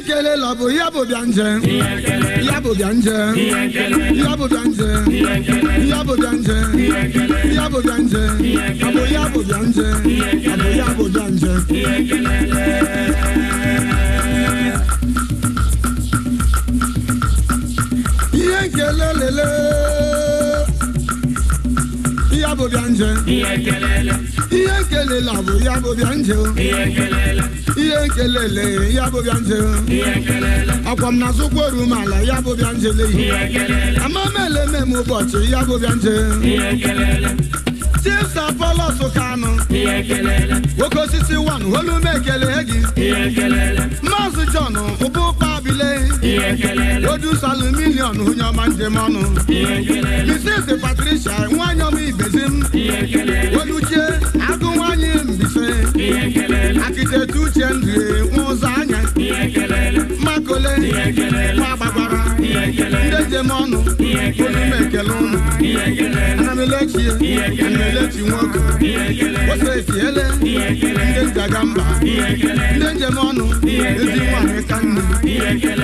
ihe kele la bụ ya bụ bịa nje ya bụ bịa nje ya bụ bịa nje ya bụ bịa nje ya lele ya bụ bịa la bụ ya bụ bịa ihe nkelele ya bụ bịa njele akwa m na-azụkwa orumala ya bụ bịa njele amamele mem ụbọchị ya bụ bịa njele tisa pọlọsụ kanụ nwoke osisi wan olume ekele gị maazị jọn ụbụkpa bile odusu aluminion onye ọma njem ọnụ misis patricia nwanyị ọma ibezi m oluchie izeta uche ndụ ụzọ anya makole agbagbara ndị njem ọnụ onume ekele ụnụ anamelechi melechi nwoke osesi ele ndị nzaga mba ndị njem ọnụ ezi nwaanyị ka nne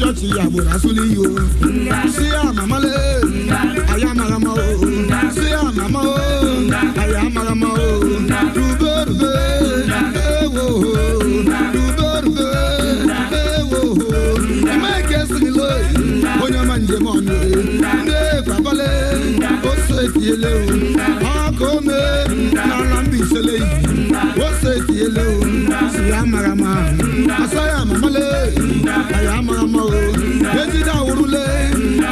ṣọ́ọ̀ṣì àbúrà súlẹ̀ yìí o. sí àmàmà lé àyà màràmà o. sí àmàmà o àyà màràmà o. rúbẹ́. se tiele o akome nana mbisele o se tiele o siya marama asaya mamale aya marama o ejida wurule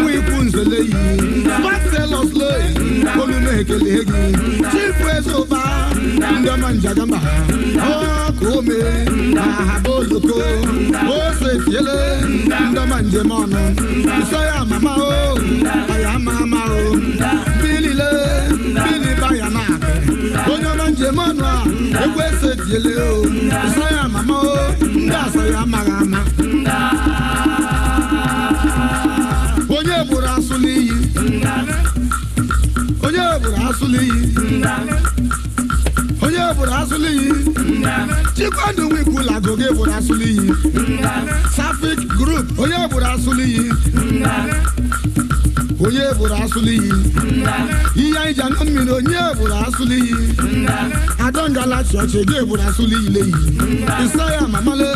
mu iku nzele yi maselos le olumekele egi chifu eso. Ndị ọma njagamba na ahaba oloko ose fiele ọma njem ọnụ nsọ ya mama o aya ama ama o bilile biliba ya na onye ọma njem ọnụ a egwu ese fiele o nsọ ya mama o ndị asọ ya amaghị ama onye gburu asụ onye gburu asụ n'iyi goge furasuli yìí. chikwadu wiku la goge furasuli yìí. safik group oye furasuli yìí. onye furasuli yìí. iye ìjà náà mìíràn onye furasuli yìí. adọ́ngala ṣọ̀ṣẹ̀ gé furasuli yìí léyìí. ìsọyà mamale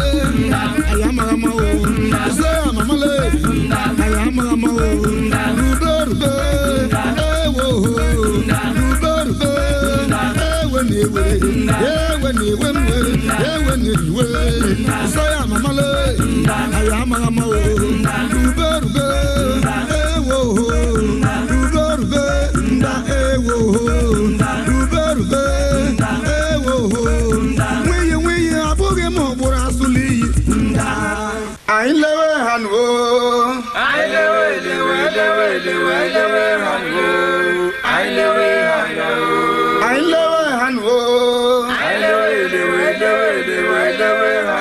àyàmàràmà o. ìsọyà mamale àyàmàràmà o. iwe yewe ni iwe mwe yewe ni iwe nso ya mama le ayo ama ama o rube rube ewo ho rube rube nda ewo ho rube rube ewo ho nwiyi nwiyi abụghị m ụgbụrụ asụli iyi anyị lewe ha nuo anyị lewe lewe lewe lewe lewe ha nuo anyị lewe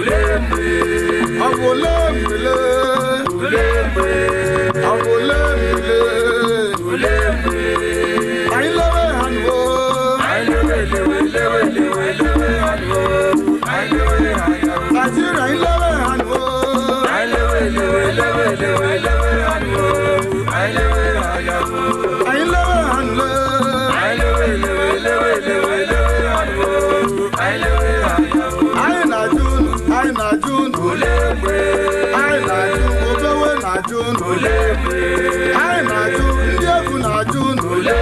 Awolemele. Awolemele. Ayilewe hanwo. Ajira ayilewe hanwo. ule na-ajụ ndị egwu na-ajụ n'ule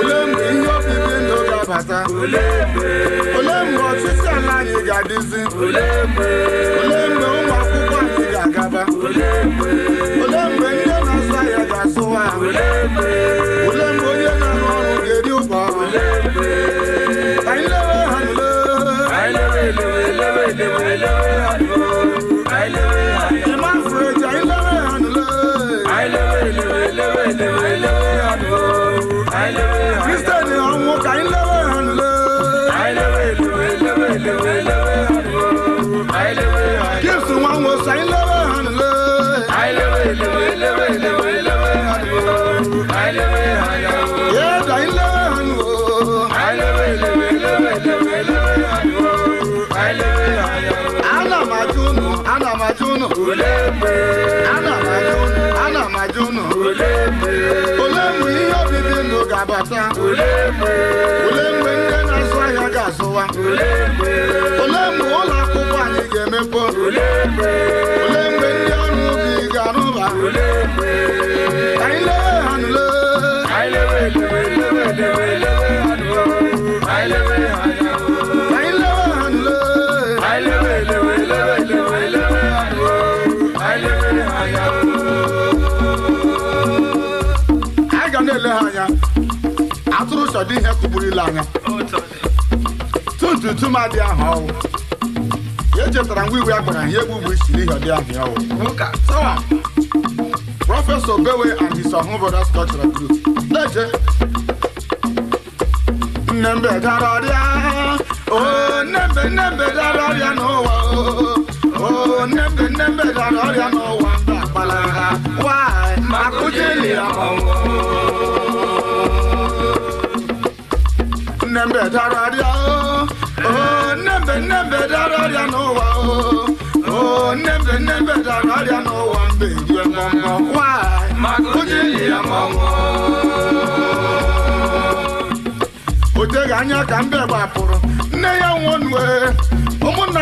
ule mgbe ihe obibi ndụ ga-abata ule mgbe ọtụtụ ala anyị ga-adịzi Olee mgbe ụmụ akwụkwọ anyị ga-agaba Olee mgbe ndị na-azụ ahịa ga-asụwa ahụ Olhamos ọdị ihe kụburila anya tuntuntum adị ahụ ọwụ ya echetara ngwa iwe ya ihe egwu bụ isiri ihe ọdị ahụ ọwụ prọfesọ bewe and his ọhụụ brothers cultural group leje nnembe dara ọdịa o oh, nnembe nnembe dara Everybody I know one thing, you are mama. Why? Magodi ya mama. Ote ganya kambe bapuru. Ne ya one way. Omo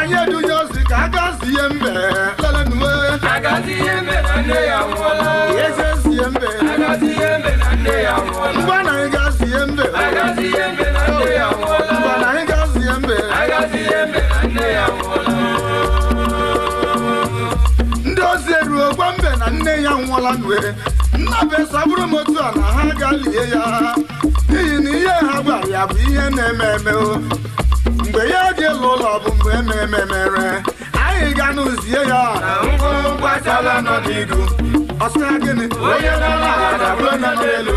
ekekwa mbe na nne ya nwụọla nwere nna be bụrụ m otu a na ha ga lie ya n'ihi na ihe ha gwara ya bụ ihe na-eme eme mgbe ya dị elu ụlọ bụ mgbe ememe mere anyị ga n'ụzie ya ọ sị gịnị onye nọ n'ala dabụrụ onye n'elu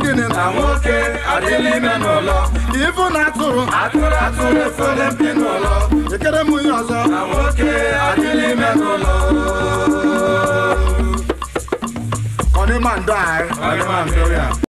dịnị na nwoke adịla ime n'ụlọ ibu na atụrụ atụrụ atụrụ efere mpi n'ụlọ ekere m ya ọzọ na nwoke adịla ime n'ụlọ ọdịma ndọ anyị ọdịma ndọ ya